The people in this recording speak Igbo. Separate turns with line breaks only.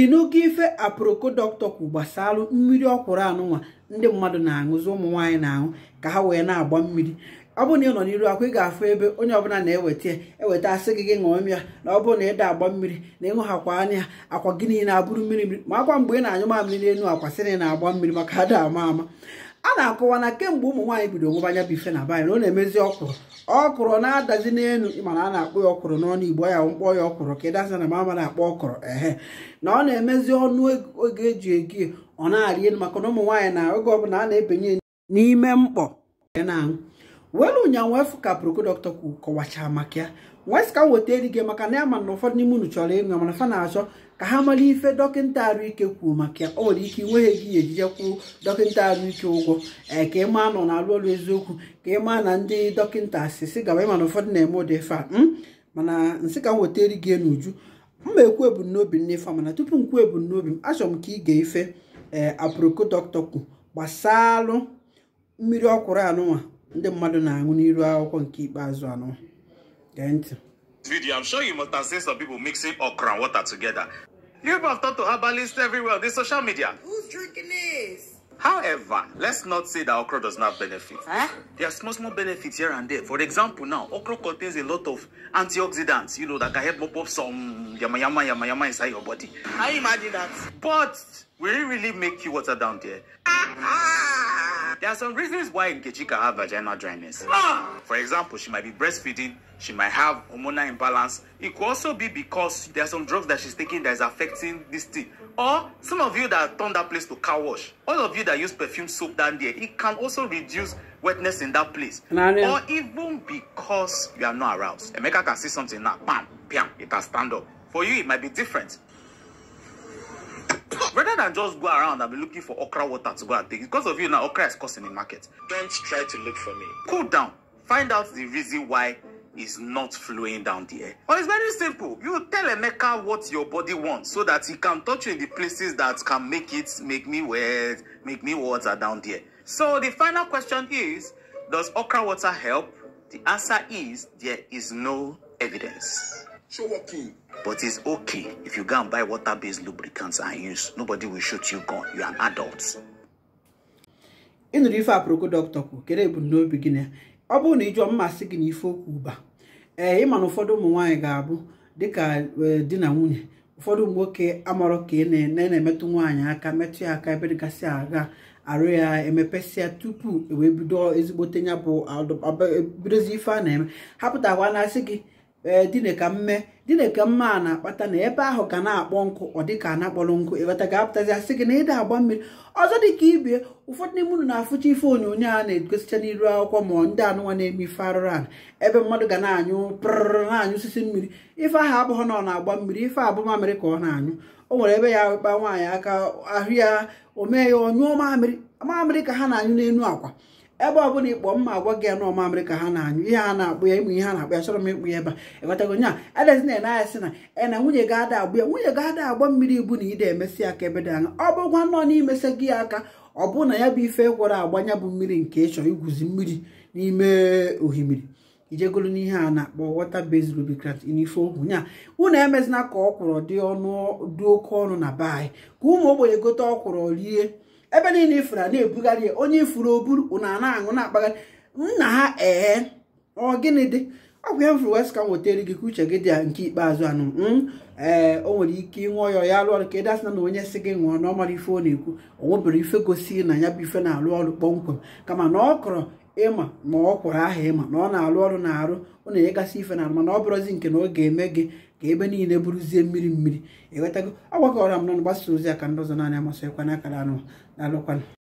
ịnụgo ife aproko dọkịta gbasalụ mmiri ọkwụrụ anụnwa ndị mmadụ na-aṅụzi ụmụ nwaanyị na-aṅụ ka ha wee na-agba mmiri ọ bụrụ na ị nọ n'iru akwa ị ga-afụ ebe onye ọbụla na-eweta eweta asị gị gị ṅụọ mmiri na ọ bụrụ na ịda agba mmiri na ịṅụ hakwa anya akwa gị niile abụrụ mmiri mmiri ma akwa mgbe ị na-anyụ mamịrị n'elu akwa sị na ị na-agba mmiri maka ada ama ama a na-akọwa na kemgbe ụmụ nwaanyị bido nwebanya bụ ife na be na ọ na-emezi ọkwụrụ ọkwụrụ na-adazi n'elu mana a na-akpọ ya ọkwụrụ n'ọnụ igbo ya mkpọ ya ọkwụrụ ka ịdazi na mama na-akpọ ọkwụrụ ehe na ọ na-emezi ọnụ e, oge eji egi ọ na-arị elu maka na ụmụ nwaanyị na oge ọbụla a na-ebinye n'ime mkpọ na welu ụnyaahụ efu ka proko dọkịta kwu kọwachaa maka ya wes ka m weta eri gị maka na ya eh, ma na ụfọdụ n'ime unu chọrọ ịṅụ mana e fa na-achọ ka ha mara ife dọkịnta arụike kwuo maka ya nwere ike inweghị gị ejije kwuo dọkịta arụike ụgwọ ee ka ịma nọ na-alụ ọrụ eziokwu ka ịma na ndị dọkịta sisi gaba ịma na ụfọdụ na-eme ụdị ife a mana nsị ka m weta eri gị n'uju mma ekwu ebumnobi m n'ife mana tupu e m kwuo ebumnobi m achọrọ m ka ị ga ife ee eh, aproko dọkịta kwu gbasalụ mmiri ọkwụrụ anụnwa ndị mmadụ na-aṅụ n'iru akwụkwọ nke ikpeazụ anụnwa Thank you.
Video, I'm sure you must have seen some people mixing okra and water together. You have talk to herbalists everywhere on the social media.
Who's drinking this?
However, let's not say that okra does not benefit. Huh? Eh? There are small, small benefits here and there. For example, now, okra contains a lot of antioxidants, you know, that can help mop up some yama yama yama yama inside your body.
I imagine that.
But will it really make you water down there? Ah, ah. There are some reasons why Nkechi can have vaginal dryness. Ah! For example, she might be breastfeeding, she might have hormonal imbalance. It could also be because there are some drugs that she's taking that is affecting this thing. Or some of you that turn that place to car wash, all of you that use perfume soap down there, it can also reduce wetness in that place. Or even because you are not aroused. Emeka can see something now, bam, bam, it can stand up. For you, it might be different than just go around and be looking for okra water to go and take. Because of you now, okra is costing in market. Don't try to look for me. Cool down. Find out the reason why is not flowing down the air. Well, it's very simple. You tell Emeka what your body wants so that he can touch you in the places that can make it make me wet, make me water down there. So the final question is, does okra water help? The answer is there is no evidence. But it's okay if you go and buy water-based lubricants and use. Nobody will shoot you gun. You are
an adult. ịnụrụ ife aproko dọkịta kwu kedu ebumnobi gị na ọ bụrụ na ịjụọ mmasị gị na ife okwu ụba ee ịma na ụfọdụ ụmụ nwanyị ga-abụ dịka e, di na nwunye ụfọdụ ụmụ nwoke amarọ ka ị na-emetụ nwanyị aka metụ ya aka ebe dịgasị aga arụ ya emepesịa tupu ewee bido ezigbote ya bụ bidozi ife a na-eme wa na-asị gị ee eh, dine ka mme dine ka mme a na-akpata na ebe ahụ ka na-akpọ nkụ ọ dị ka na-akpọrọ nkụ ịbata ka apụtazi asị gị na ịda agba mmiri ọzọ dị ka ibie ụfọdụ n'ime unu na-afụcha ife onyonyo a na-egosicha n'iru akwụkwọ ma ndị anụnwa na-eme ife arụrụ ala ebe mmadụ ga na-anyụ prụrụ na-anyụ osisi mmiri ife ahụ abụghị na ọ na-agba mmiri ife abụ mamịrị ka ọ na-anyụ o nwere ebe ya kpa nwaanyị aka ahụ ya o mee ya ọnyụọ mamịrị mamịrị ka ha na-anyụ n'elu akwa ebe ọ bụla ịkpọ mma agwa gị ya nọọ ka ha na-anyụ ihe a na-akpụ ya ịmụ ihe a na-akpụ ya chọrọ m ịkpụ ya ebe a ịghọtago nya adịghị na ene anya sị na ena na nwunye ga-ada agbụ ya nwunye ga-ada agba mmiri ibu na ide emesi aka ka ebe dị anya ọ bụkwa nọọ n'imesi gị aka ọ bụ na ya bụ ife gwọrọ agba ya bụ mmiri nke ịchọ igwuzi mmiri n'ime ohimiri ijegolu n'ihe a na-akpọ wata based lubricant n'ife okwu nya unu emezina ka ọkwụrụ dị ọnụ dị oke ọnụ na be anyị ka ụmụ ogbenye gote ọkwụrụ rie ebe niile ifuru a na-ebugharị ya onye ifuru oburu ụnụ a na-aṅụ na-akpagharị nna ha ee ọ gịnị dị ọgwụ ya mfuru wes ka m wetara gị ka uche gị dị ya nke ikpeazụ anụ hmm? ee o nwere ike ịṅụọ ya ya alụ ọrụ ka ịda na onye si gị ṅụọ na ọ mara ife ọ na-ekwu ọ nwebere ife gosi na ya bụ ife na-alụ ọrụ kpọmkwem kama na ọ kọrọ ịma ma ọ kwụrụ aha ịma na ọ na-alụ ọrụ na-arụ ọ na-enyegasị ife na mana ọ bụrụzi nke na ọ ga-eme gị ka ebe niile bụrụzie mmiri mmiri enwetago agbakọrọ ọrụ na mgbasa ozi aka ndị ọzọ naanị amasịkwana akara anụ na alụkwana